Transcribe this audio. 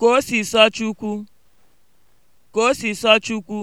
Ka o si sọ Chukwu. Ka o si sọ Chukwu.